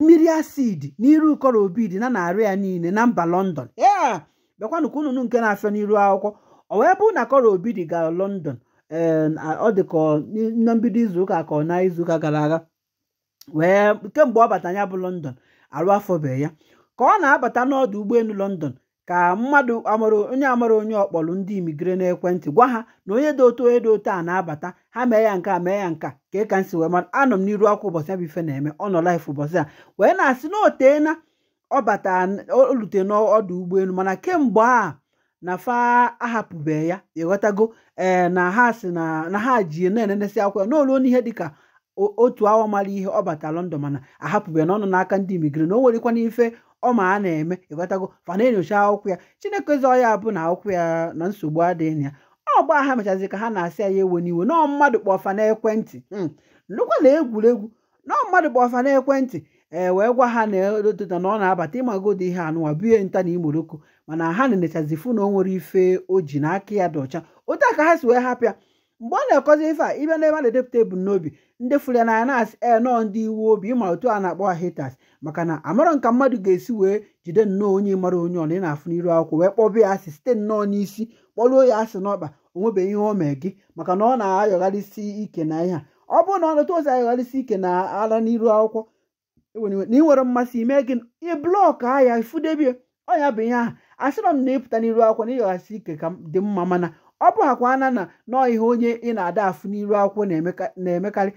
mmiri asidi n'iru ụkọrọ obi dị na narị ya niile na mba london ee bịakwanụ ka unu nke na-afịa n'iru akwụkwọ ọ wee bụrụ na kọrọ obi dị gara london um, ọ dị ka na mbido izuụka ka ọ na izuụka gara aga wee kemgbe ọ bata ya bụ london arụ afọ be ya ka ọ na-abata n'ọdụ ụgbọelu london ka mmadụ amara onye amara onye ọkpọrọ ndị na n'ekwentị gwa ha na onye dị otu onye dị otu a na-abata ha mee ya nke a mee ya nka ka ị ka nsi wee mara anọ m n'iru akwụ ụbọchị ya bụ ife na-eme ọ nọ laif ụbọchị a wee na-asị na oteena ọbata olute n'ọdụ ụgbọelu mana kemgbe a na fa ahapụbeghị ya ịghọtago ee eh, na ha si na ha ji na-enenesi akwụ ya n'olu n'ihe dịka otu awa mara ihe ọ lọndọn London mana ahapụbeghị na ọ nọ n'aka ndị imigre na o nwerekwana ife ọ ma a na-eme ịghọtago fa na-enyocha akwụkwọ ya chineke zọ ya bụ na akwụkwọ ya na nsogbu adịghị ya ọ gba ha mechazi ka ha na-asị ya ewe n'iwe nọọ mmadụ kpọfa n'ekwentị hmm. nnukwu na egwuregwu nọọ mmadụ kpọfa n'ekwentị ee wee gwa ha na elotota na ọ na-abata ịmagodo ihe anụwa bie nta na imoroko mana ha na-enechazi fụ na o nwere ife o ji na aka ya dị ọcha otu a ka ha si wee hapịa mgbe ọ na akọzi ife a ịbịa n'ebe a na-edepụta ebumnobi ndị fụrụ ya na na e, nọọ ndị iwu obi ịma otu a na-akpọ hitas maka na amarọ nka mmadụ ga-esi wee jide nnọọ onye mara onye ọ na ị na-afụ n'iru akwụkwọ wee kpọba ya asị site nnọọ n'isi kpọruo ya asị n'ọkpa o nwebeghị ihe o mee gị maka na ọ na-ayọgharịsi ike na ihe a ọ bụrụ na ọ nọta ozi ayọgharịsi ike na ala n'iru akwụkwọ e na ị nwere mmasị ime gị ị blọk a ifudebie ọ ya bụ ihe ahụ asịrọ m na ịpụta n'iru akwụkwọ na ịyọghasị ike ka dị mma mana ọ bụghakwa ana na nọọ ihe onye ị na-ada afụ n'iru akwụkwọ na-emekarị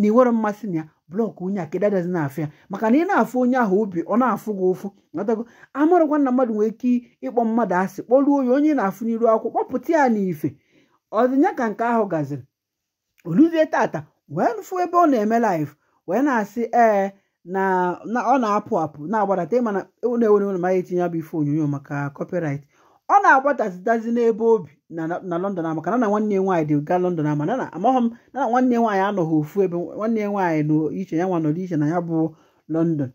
na iwere mmasị na ya blọk onye a kedụ adazi na-afụ ya maka na ị na-afụ onye ahụ obi ọ na-afụ gị ụfụ natago amarụkwa na mmadụ nwere ike ịkpọ mmadụ asị kpọruo onye onye na-afụ n'iru akwụkwọ kpọpụta ya n'ife ọdịnya ka nke ahụ gaziri oluzie tata wee fụ ebe ọ na-eme laif wee na-asị ee na ọ na-apụ apụ na-agbadata ịmana na-enwere na mara etinye ya bụ ife onyonyo maka copyright ọ na-agbatazitazi n'ebe obi na London ama kana na nwanne nwaanyị dị ga London ama na amaghị m na nwanne nwaanyị anọghị ofu ebe nwanne nwaanyị nọ iche ya nwa nọrọ iche na ya bụ London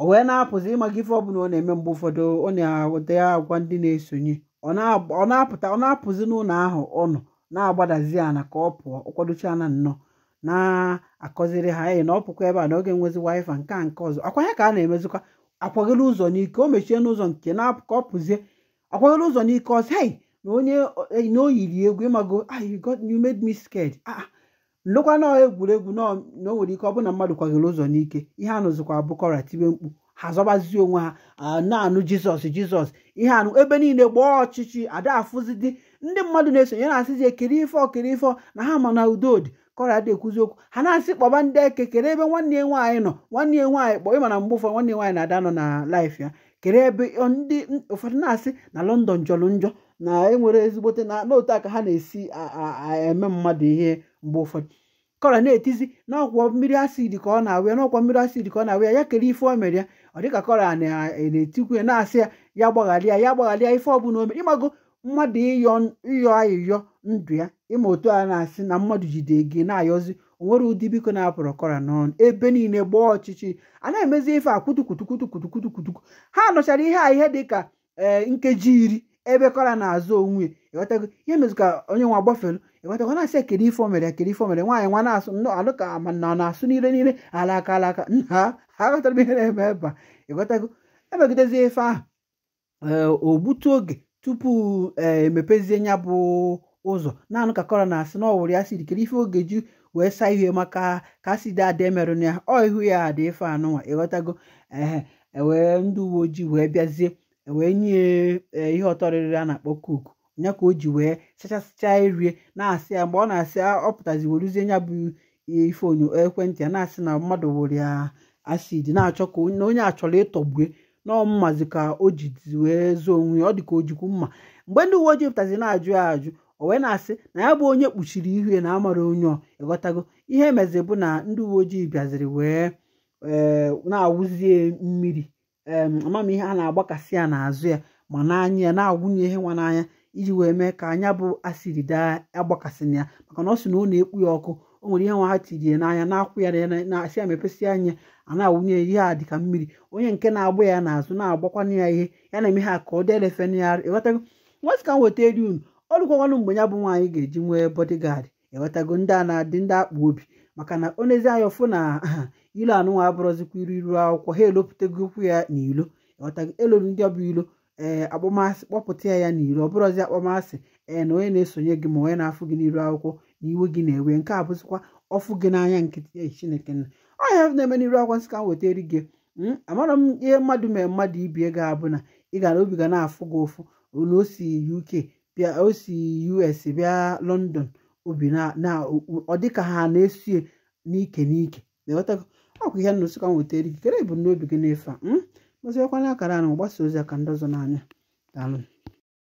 o wee na-apụzi ịmaga ife ọbụla ọ na-eme mgbe ụfọdụ ọ na-awụta ya agwa ndị na-esonye ọ na-apụta ọ na-apụzi n'ụlọ ahụ ọ nọ na-agbadazi ana ka ọ pụọ ọkwadocha na nnọọ na-akọziri ha enyi na ọ pụkwa ebe a na oge nwezi wifa nke a nke ọzọ akwa ya ka a na-emezikwa akwagoro ụzọ n'ike o mechie n'ụzọ nke na-apụ ka ọ pụzie akwago ụzọ n'ike ọsị hei na onye eh, na o yiri egwu ịmago ah you made me scared ah, ah. nlekwa nọọ egwuregwu na o nwere ike ọ bụ na mmadụ kwagoro ụzọ n'ike ihe anụzikwa abụkọra tibe mkpu ha zọbazie onwe ha na-anụ jizọs jizọs ihe anụ ebe niile gbaa ọchịchị ada ndị mmadụ na-esonye na-asịzi ekiri ife ọkiri ife na ha ma na udodị kọra dị ekwuzi okwu ha na-asị kpọba ndị eke kere ebe nwanne ya nwaanyị nọ nwanne ya nwaanyị kpọọ ịma mgbe ụfọdụ nwanne nwaanyị na-ada nọ na laif ya kere ebe ndị ụfọdụ na-asị na london jọrọ njọ na enwere ezigbote na ala aka ha na-esi eme mmadụ ihe mgbe ụfọdụ kọra na-etizi n'ọkwọ mmiri asid ka ọ na-awụ ya n'ọkwọ mmiri asidi ka ọ na-awụ ya ya kere ife o mere ya ọ dịka kọra na-etikwu ya na-asị ya ya gbagharịa ya gbaghalịa ife ọbụla o mere ịmago mmadụ ịyọ ayịyọ ndụ ya ịma otu a na-asị na mmadụ jide gị na-ayọzi onwere ụdị biko na-apụrụ kọra n'ọnụ ebe niile gbaa ọchịchị a na-emezi ife akwutukwutukwutukwutukwutukwutukwutu ha nọchara ihe a ihe dị ka nkeji iri ebe kọra na-azụ onwe ịghọtago ihe mezụka onye nwa gbafelu ịghọtago na-asị ekere ife omere ekere ife omere nwaanyị nwa na-asụ alụ ka ma na ọ na-asụ niile niile alaka alaka nna ha ghọtara ihe na-eme ebe a ịghọtago emegidezi ife ahụ ogbutu oge tupu emepezie ya bụ ụzọ naanụ ka kọrọ na-asị na ọwụrụ ya siri kere ife ogeju wee saa ihe maka ka asidi ada emerụna ya ọ ihu ya adị ife anụnwa ịghọtago ehe ewee ndị uwe ojii wee bịazie e wee nye e, ihe ọtọrịrị a na-akpọ koku nya ka o ji wee sachasịcha irie na-asị ya mgbe ọ na-asị ọ pụtazi weruzie nya bụ ife onyo ekwentị ya na-asị na mmadụ wụrụ ya asidi na-achọ ka na onye a chọrọ ịtọgbue n'ọmmazi ka o jizi wee zoo onwe ya ọ dị ka o jikwu mma mgbe ndị uwe ojii pụtazi na-ajụ ya ajụ o wee na-asị na ya bụ onye kpuchiri ihu ya na amara onye ịghọtago ihe emezi bụ na ndị uwe ojii bịaziri wee eh, na-awụzie mmiri ihe a na-agbakasị ya n'azụ ya ma n'anya ya na-agwụnye ihe nwa n'anya iji wee mee ka anya bụ asịrị daa agbakasịna ya maka na ọ sị na ọ na-ekpu ya ọkụ o nwere ihe nwa ha tiri n'anya na-akwụ ya na-asị ya mepesị anya a na-awụnye ya ihe a dịka mmiri onye nke na-agba ya n'azụ na-agbakwana ya ihe ya na-eme ha ka ọ dịa na ya ịghọtago nwasị ka m weta eri unu ọlụkwakwanụ mgbe ya bụ nwaanyị ga-eji nwee bodyguard enwetago ndị a na-adị ndị akpa obi maka na onezi anya ọfụ na ilu nwa abụrọzikwa iru iru akwụkwọ ha elopụtago okwu ya na ilo enwetago elolu ndị ọbụ ilo ee akpọmasị kpọpụta ya ya ilo ọ bụrụzi akpọmasị ee na onye na-esonye gị ma onye na-afụ gị n'iru akwụkwọ na iwe gị na-ewe nke a bụzikwa ọfụ gị n'anya nkịtị ehi chineke nna ọhịa na-eme n'iru akwụkwọ nsị ka m weta eri gị hmm, amara m ihe mmadụ mere mmadụ ibie ga-abụ na ị ga na obi ga na-afụ gị ụfụ olu o si UK bịa osi us bịa london obi na ọ dịka ha na-esue n'ike n'ike ọkụ ihe na osikwa nwetara ikikere ebumnobi gị ife a mụziekwana akara na gbasa ozi aka ndị ọzọ n'anya daalụ